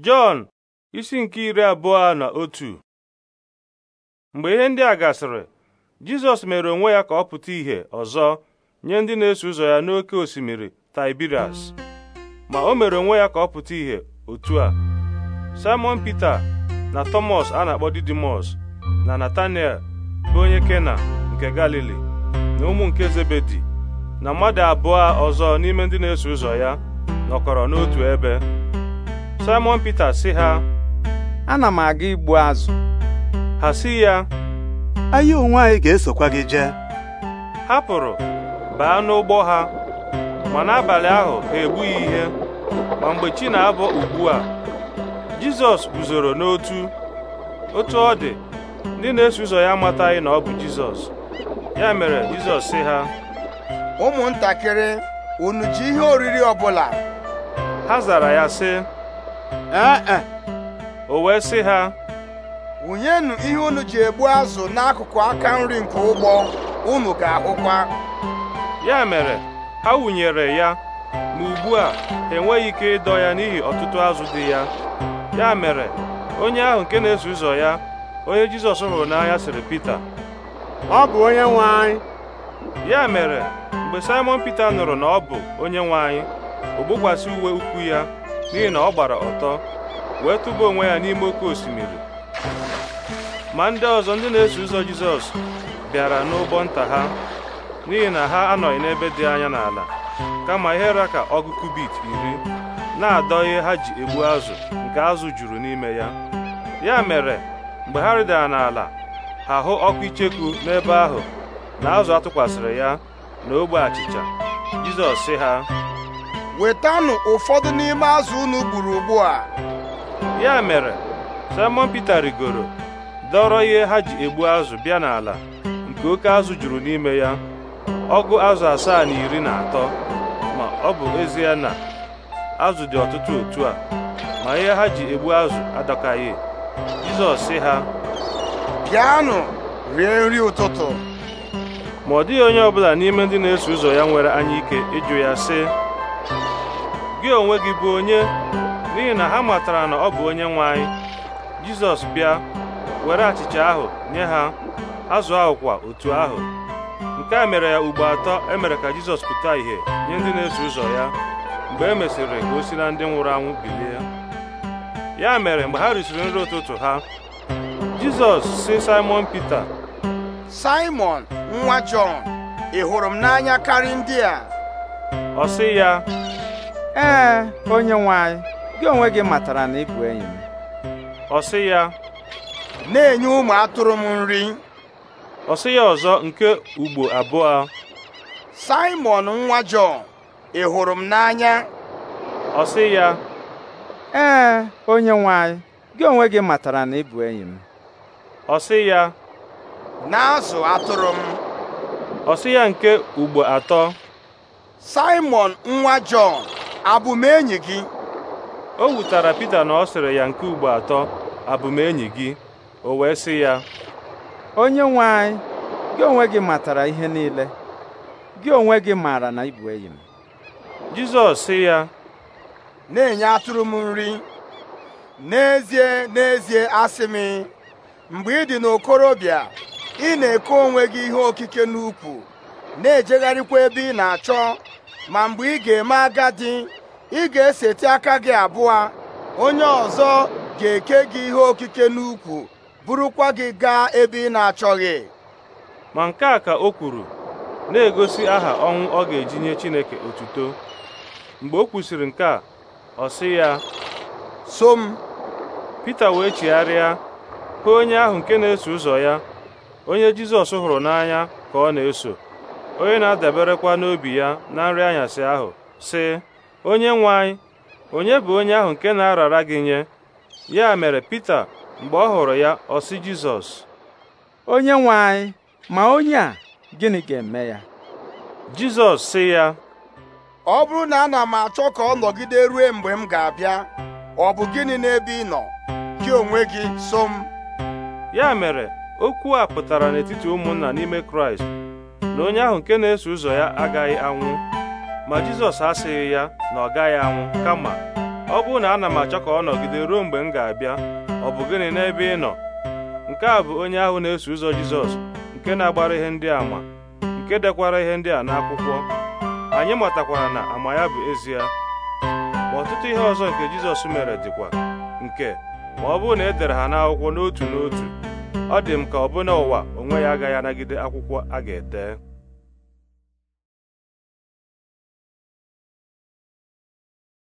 Jọn isi nke iri abụọ na otu mgbe ihe ndị a gasịrị Jizọs mere onwe ya ka ọ pụta ìhè ọzọ nye ndị na-eso ụzọ ya n'oké osimiri Tiberias ma o mere onwe ya ka ọ pụta ìhè otu a Simon Peter na Thomas a na-akpọ Didimus na Nathaniel bụ onye Kena nke Galili na ụmụ nke Zebedi na mmadụ abụọ ọzọ n'ime ndị na-eso ụzọ ya nọkọrọ n'otu ebe Simon Pita sị ha ana m aga igbu azụ ha sị ya anyị onwe anyị ga-esokwa gị jee ha pụrụ baa n'ụgbọ ha ma n'abalị ahụ ha egbughị ihe ma mgbe chi na-abọ ugbu a Jizọs guzoro n'otu otu ọ dị ndị na-eso ụzọ ya amataghị na ọ bụ Jizọs ya mere Jizọs sị ha ụmụntakịrị unu ji ihe oriri ọ bụla ha zara ya sị ee ah, ah. o wee sị ha wụnyenụ ihe unu ji egbu azụ n'akụkụ aka nri nke ụgbọ unu ga-ahụkwa ya mere ha wụnyere ya ma ugbu a enweghị ike ịdọ ya n'ihi ọtụtụ azụ dị ya ya mere onye ahụ nke na-eso ụzọ ya onye Jizọs hụrụ n'anya sịrị Pita ọ bụ onye nwe ya mere mgbe Simon Pita nụrụ na ọ bụ onye nwe anyị o gbokwasị uwe ukwu ya n'ihi na ọ gbara ọtọ wee tụba onwe ya n'ime oke osimiri ma ndị ọzọ ndị na-eso ụzọ Jizọs bịara n'ụgbọ nta ha n'ihi na ha anọghị n'ebe dị anya n'ala kama ihe ra ka ọgụ kubit iri na-adọ ihe ha ji egbu azụ nke azụ juru n'ime ya ya mere mgbe ha rịdara n'ala ha hụ ọkụ icheku n'ebe ahụ na azụ atụkwasịrị ya na ogbe achịcha Jizọs sị ha wetanụ ụfọdụ n'ime azụ unu gburu ugbu a. ya mere Simon Peter rigoro dọrọ ihe ha ji egbu azụ bịa n'ala nke oke azụ juru n'ime ya ọgụ azụ asaa na iri na atọ ma ọ bụ ezie na azụ dị ọtụtụ otu a ma ihe ha ji egbu azụ adọkaghị Jizọs sị ha bịanụ rie nri ụtụtụ ma ọ dịghị onye ọbụla n'ime ndị na-eso ụzọ ya nwere anya ike ịjụ ya sị gị onwe gị bụ onye n'ihi na ha matara na ọ bụ onye nwe anyị jizọs bịa were achịcha ahụ nye ha azụ ahụ kwa otu ahụ nke a mere ya ugbo atọ e mere ka jizọs pụta ìhè nye ndị na-eso ụzọ ya mgbe e mesịrị ka o si na ndị nwụrụ anwụ bilie ya mere mgbe ha risiri nri ụtụtụ ha jizọs si simon pita simon nwa jọn ị hụrụ m n'anya karị ndị a ọ sị ya ee onye nwanyị, gị onwe gị matara na ị bụ enyi m ọ sị ya na-enye ụmụ atụrụ m nri ọ sị ya ọzọ nke ugbo abụọ Simon nwa Jọn ị hụrụ m n'anya ọ sị ya ee onye nwanyị, gị onwe gị matara na ị bụ enyi m ọ sị ya na-azụ atụrụ m ọ sị ya nke ugbo atọ Simon nwa Jọn abụ m enyi gị o wutara Pita na ọ sịrị ya nke ugbo atọ abụ m enyi gị o wee sị ya onye nwe anyị gị onwe gị matara ihe niile gị onwe gị maara na ị enyi m Jizọs sị ya na-enye atụrụ m nri n'ezie n'ezie asị m mgbe ị dị n'okorobịa ị na-eke onwe gị ihe okike n'ukwu na-ejegharịkwa ebe ị na-achọ ma mgbe ị ga-eme agadi ị ga-eseti aka gị abụọ onye ọzọ ga-eke gị ihe okike n'ukwu kwa gị gaa ebe ị na-achọghị ma nke a ka o kwuru na-egosi aha ọnwụ ọ ga-eji nye Chineke otuto mgbe o kwusịrị nke a ọ sị ya so m Pita wee chigharịa hụ onye ahụ nke na-eso ụzọ ya onye Jizọs hụrụ n'anya ka ọ na-eso onye na-adaberekwa n'obi ya na nri anyasị ahụ sị onye nwe onye bụ onye ahụ nke na-arara gị nye ya mere Pita mgbe ọ hụrụ ya ọ sị Jizọs onye nwanyị, ma onye a gịnị ga-eme ya Jizọs sị ya ọ bụrụ na ana m achọ ka ọ nọgide rue mgbe m ga-abịa ọ bụ gịnị n'ebe ị nọ gị onwe gị so m ya mere okwu a pụtara n'etiti ụmụnna n'ime Kraịst na onye ahụ nke na-eso ụzọ ya agaghị anwụ ma Jizọs asịghị ya na ọ gaghị anwụ kama ọ bụrụ na ana m achọ ka ọ nọgide ruo mgbe m ga-abịa ọ bụ gịnị n'ebe ị nọ nke a bụ onye ahụ na-eso ụzọ Jizọs nke na-agbara ihe ndị àmà nke dekwara ihe ndị a n'akwụkwọ anyị matakwara na ama ya bụ ezie ma ọtụtụ ihe ọzọ nke Jizọs mere dịkwa nke ma ọ bụrụ na e dere ha n'akwụkwọ n'otu n'otu ọ dị m ka ọbụna ụwa onwe ya agaghị anagide akwụkwọ a ga-ete